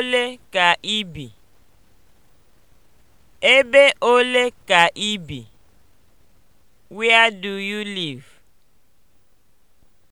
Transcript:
ole ka i bi? Ebe ole ka i bi? Where do you live?